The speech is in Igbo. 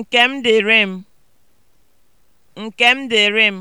nkem m dịrị m. Nke m